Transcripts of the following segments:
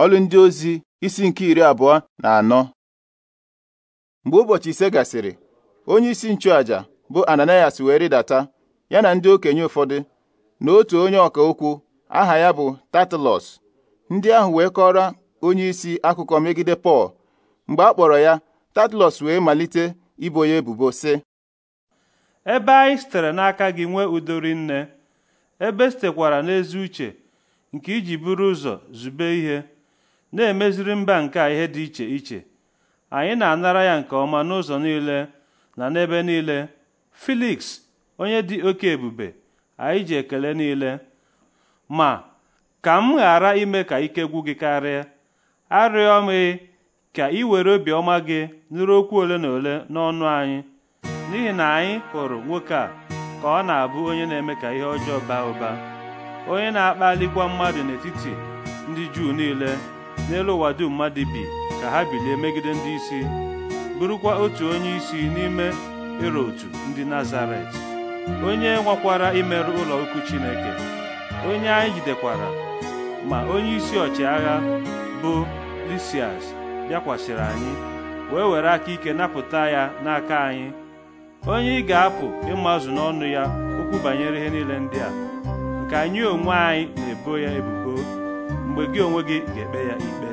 ọlụ ndị ozi isi nke iri abụọ na anọ mgbe ụbọchị ise gasịrị onye isi nchụaja bụ Ananias wee rịdata ya na ndị okenye ụfọdụ na otu onye ọka okwu aha ya bụ tatlọs ndị ahụ wee kọrọ onye isi akụkọ megide Pọl mgbe a kpọrọ ya tatlọs wee malite ibo ya ebubo si. ebe anyị sitere n'aka gị nwee udori nne ebe sitekwara n'ezi uche nke iji buru ụzọ zube ihe na-emeziri mba nke a ihe dị iche iche anyị na-anara ya nke ọma n'ụzọ niile na n'ebe niile feliks onye dị oke ebube anyị ji ekele niile ma ka m ghara ime ka ike gwụ gị karịa arịọ m ka ị were obiọma gị nụrụ okwu ole na ole n'ọnụ anyị n'ihi na anyị hụrụ nwoke a ka ọ na-abụ onye na-eme ka ihe ọjọọ baa ụba onye na-akpalikwa mmadụ n'etiti ndị Juu niile n'elu ụwa dum mmadụ bi ka ha bilie megide ndị isi bụrụkwa otu onye isi n'ime irotu ndị nazaret onye nwakwara imerụ ụlọ ukwu chineke onye anyị jidekwara ma onye isi ọchịagha bụ lisias bịakwasịrị anyị wee were aka ike napụta ya n'aka anyị onye ị ga-apụ ịmazụ n'ọnụ ya okwu banyere ihe niile ndị a nke anyị onwe anyị na-ebo ya ebubo mgbe gị onwe gị ga-ekpe ya ikpe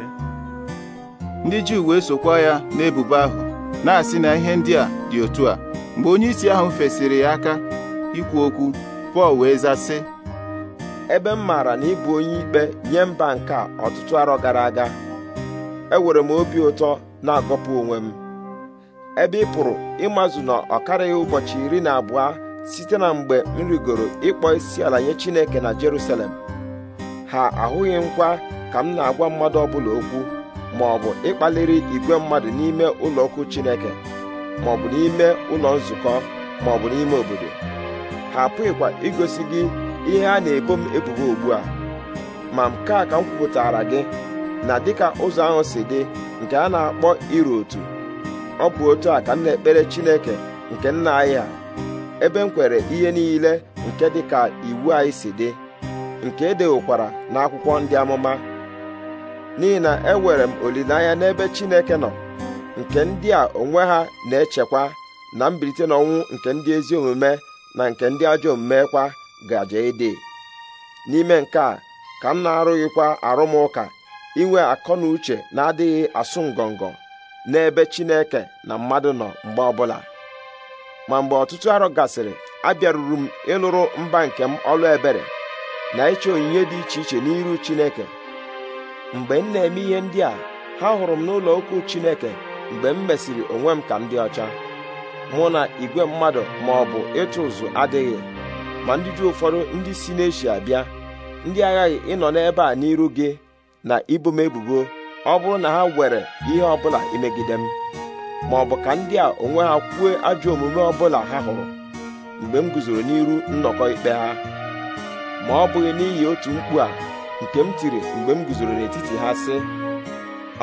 ndị Juu wee sokwa ya n'ebubo ahụ na-asị na ihe ndị a dị otu a mgbe onyeisi ahụ fesiri ya aka ikwu okwu Pọl wee zasị ebe m maara na ịbụ onye ikpe nye mba nke a ọtụtụ arọ gara aga enwere m obi ụtọ na-agọpụ onwe m ebe ị pụrụ ịmazụ na ọ karịghị ụbọchị iri na abụọ site na mgbe m rigoro ịkpọ isi ala nye Chineke na Jerusalem ha ahụghị nkwa ka m na-agwa mmadụ ọbụla okwu ma ọ bụ ịkpaliri igwe mmadụ n'ime ụlọokwu Chineke ma ọ bụ n'ime ụlọ nzukọ ma ọ bụ n'ime obodo ha apụghịkwa igosi gị ihe a na-ebo m ebubo ugbu a ma nke a ka m kwupụtara gị na dịka ụzọ ahụ si dị nke a na-akpọ iru otu ọ bụ otu a ka m na-ekpere Chineke nke nna anyị a, ebe m kwere ihe niile nke dịka iwu anyị si dị nke e n'akwụkwọ ndị amụma n'ihi na enwere m olileanya n'ebe Chineke nọ nke ndị a onwe ha na-echekwa na mbilite n'ọnwụ nke ndị ezi omume na nke ndị ajọ omume kwa gaje ịdị n'ime nke a ka m na-arụghịkwa arụmụka inwe akọ na uche na-adịghị asụ ngọngọ n'ebe Chineke na mmadụ nọ mgbe ọbụla ma mgbe ọtụtụ arọ gasịrị abịaruru m ịlụrụ mba nke m ọlụ ebere na ịchọ onyinye dị iche iche n'iru Chineke mgbe m na-eme ihe ndị a ha hụrụ m n'ụlọ ukwu Chineke mgbe m mesịrị onwe m ka m dị ọcha mụ na igwe mmadụ ma ọ bụ ịtụ ụzụ adịghị ma ndị dị ụfọdụ ndị si n'eshia bịa ndị aghaghị ịnọ n'ebe a n'iru gị na ibo m ebubo ọ bụrụ na ha were ihe ọbụla imegide m ma ọ bụ ka ndị a onwe ha kwuo ajọ omume ọ bụla ha hụrụ mgbe m guzoro n'iru nnọkọ ikpe ha ma ọ bụghị n'ihi otu mkpu a nke m tiri mgbe m guzoro n'etiti ha sị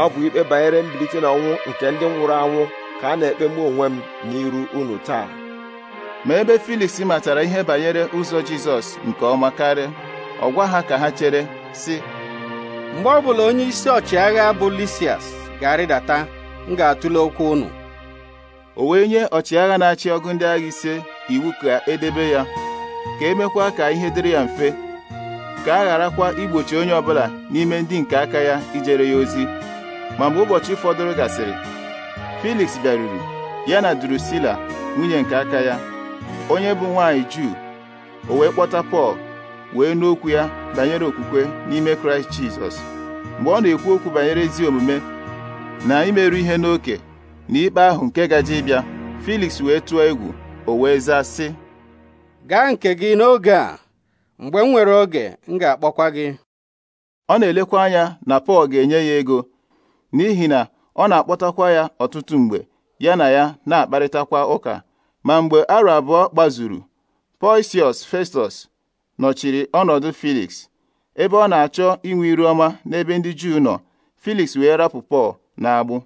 ọ bụ ikpe banyere mbilite n'ọnwụ nke ndị nwụrụ anwụ ka a na-ekpe mụ onwe m n'iru unu taa ma ebe Filis matara ihe banyere ụzọ Jizọs nke ọma karịa ọ gwa ha ka ha chere sị mgbe ọ bụla onye isi ọchịagha bụ Lisias ga-arịdata m ga-atụle okwu unu o wee nye ọchịagha na-achị ọgụ ndị agha ise iwu ka edebe ya ka emekwa ka ihe dịrị ya mfe ka a gharakwa igbochi onye ọbụla n'ime ndị nke aka ya ijere ya ozi ma mgbe ụbọchị fọdụrụ gasịrị feliks bịaruru ya na Drusila nwunye nke aka ya onye bụ nwaanyị Juu o wee kpọta Pọl wee n'okwu ya banyere okwukwe n'ime Kraịst Jizọs mgbe ọ na-ekwu okwu banyere ezi omume na imerụ ihe n'oke na ikpe ahụ nke gaje ịbịa feliks wee tụọ egwu o wee zaa sị gaa nke gị n'oge a mgbe m nwere oge m ga-akpọkwa gị ọ na-elekwa anya na Pọl ga-enye ya ego n'ihi na ọ na-akpọtakwa ya ọtụtụ mgbe ya na ya na-akparịtakwa ụka ma mgbe arọ abụọ gbazuru Poisius Festus nọchiri ọnọdụ Felix ebe ọ na-achọ inwe iru ọma n'ebe ndị Juu nọ Felix wee rapụ Pọl na agbụ